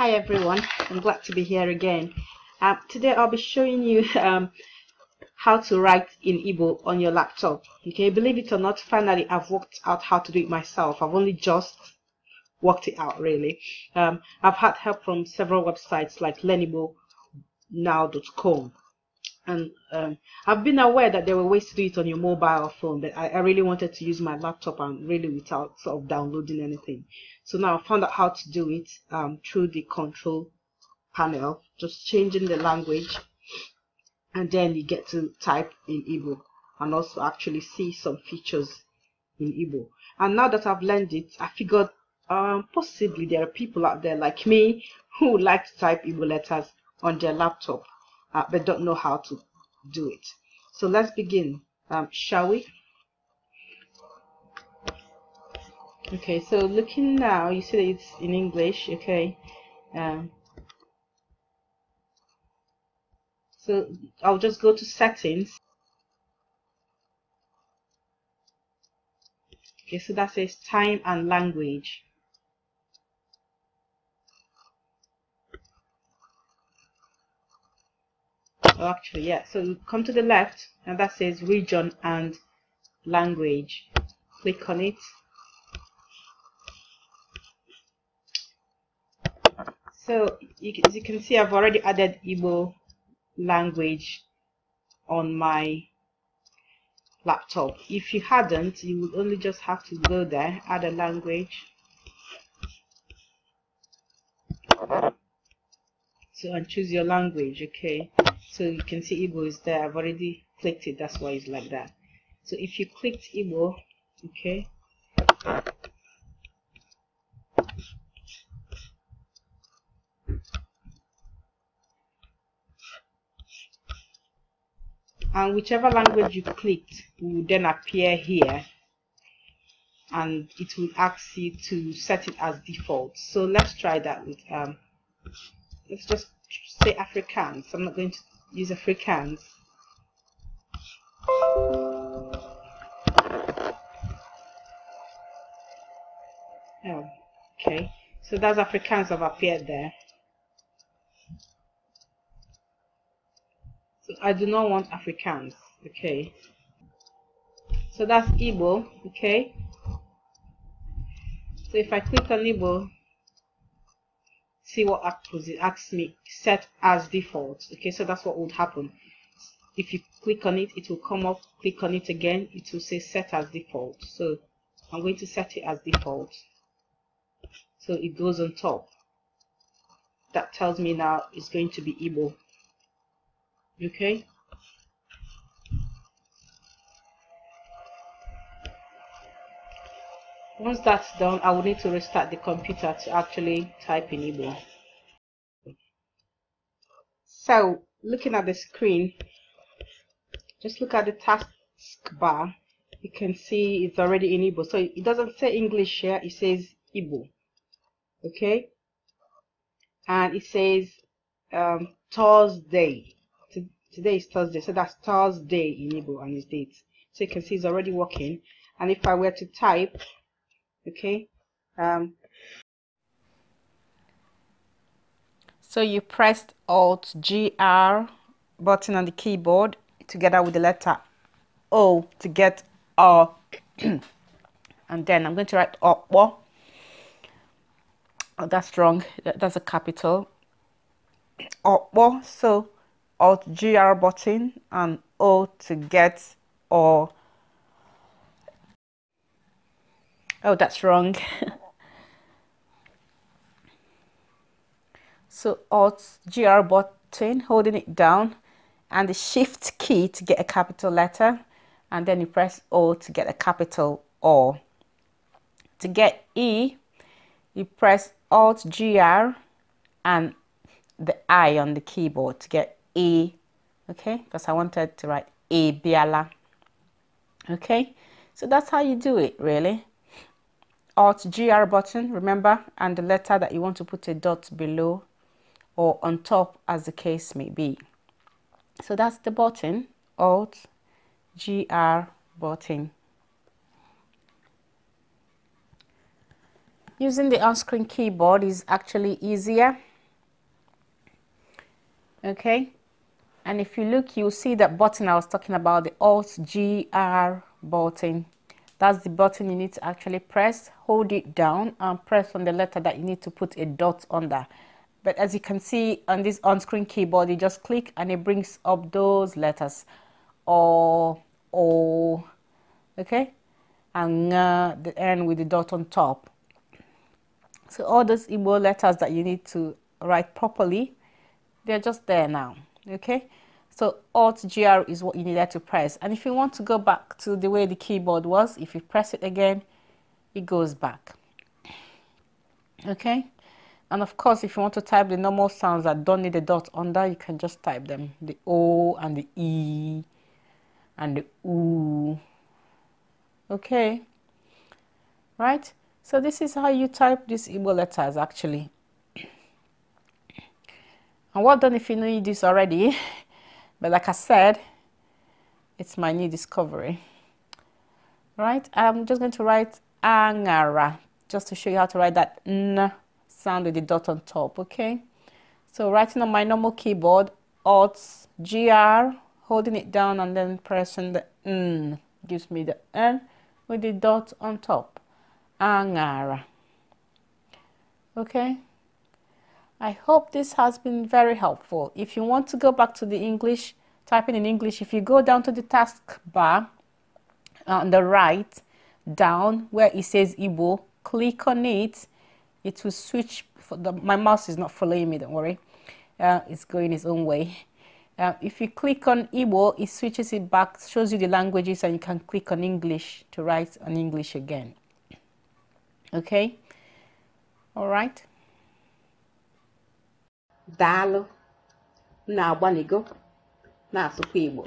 hi everyone I'm glad to be here again uh, today I'll be showing you um, how to write in Igbo on your laptop okay believe it or not finally I've worked out how to do it myself I've only just worked it out really um, I've had help from several websites like learnable now.com and um, I've been aware that there were ways to do it on your mobile phone, but I, I really wanted to use my laptop and really without sort of downloading anything. So now I found out how to do it um, through the control panel, just changing the language, and then you get to type in Igbo and also actually see some features in Igbo. And now that I've learned it, I figured um, possibly there are people out there like me who like to type Igbo letters on their laptop uh, but don't know how to do it. So let's begin, um, shall we? Okay, so looking now, you see that it's in English, okay. Um, so I'll just go to settings. Okay, so that says time and language. oh, actually yeah so you come to the left and that says region and language click on it so you, as you can see I've already added Igbo language on my laptop if you hadn't you would only just have to go there add a language so and choose your language okay so you can see Igbo is there I've already clicked it that's why it's like that so if you clicked Igbo okay and whichever language you clicked will then appear here and it will ask you to set it as default so let's try that with um let's just say Afrikaans I'm not going to use Afrikaans. Oh, okay. So that's Africans have appeared there. So I do not want Africans. Okay. So that's Igbo. Okay. So if I click on Igbo, see what asks me set as default okay so that's what would happen if you click on it it will come up click on it again it will say set as default so I'm going to set it as default so it goes on top that tells me now it's going to be Igbo okay Once that's done, I will need to restart the computer to actually type in Igbo. So, looking at the screen, just look at the taskbar. You can see it's already in Igbo. So it doesn't say English here, it says Igbo. Okay? And it says um, Thursday. Today is Thursday, so that's Thursday in Igbo and its date. So you can see it's already working. And if I were to type okay um, so you pressed alt gr button on the keyboard together with the letter o to get r and then i'm going to write O. oh, that's wrong that's a capital oppo so alt gr button and o to get or oh that's wrong so alt gr button holding it down and the shift key to get a capital letter and then you press o to get a capital o to get e you press alt gr and the i on the keyboard to get e okay because i wanted to write e biala okay so that's how you do it really Alt GR button, remember, and the letter that you want to put a dot below or on top as the case may be. So that's the button, Alt GR button. Using the on-screen keyboard is actually easier. Okay, and if you look, you'll see that button I was talking about, the Alt GR button that's the button you need to actually press hold it down and press on the letter that you need to put a dot under but as you can see on this on-screen keyboard you just click and it brings up those letters or O, okay and uh, the end with the dot on top so all those Igbo letters that you need to write properly they're just there now okay so Alt GR is what you needed to press. And if you want to go back to the way the keyboard was, if you press it again, it goes back. Okay. And of course, if you want to type the normal sounds that don't need a dot under, you can just type them. The O and the E and the O. Okay. Right. So this is how you type these Igbo letters actually. And well done if you know this already. But like I said, it's my new discovery. Right, I'm just going to write angara just to show you how to write that n sound with the dot on top, okay? So writing on my normal keyboard, Alt GR, holding it down and then pressing the N gives me the N with the dot on top. Angara. Okay? I hope this has been very helpful. If you want to go back to the English, typing in English, if you go down to the taskbar on the right, down where it says Igbo, click on it. It will switch. The, my mouse is not following me, don't worry. Uh, it's going its own way. Uh, if you click on Igbo, it switches it back, shows you the languages, and you can click on English to write on English again. Okay? All right. daalụ na-agbanigo na-asụkwa Igbo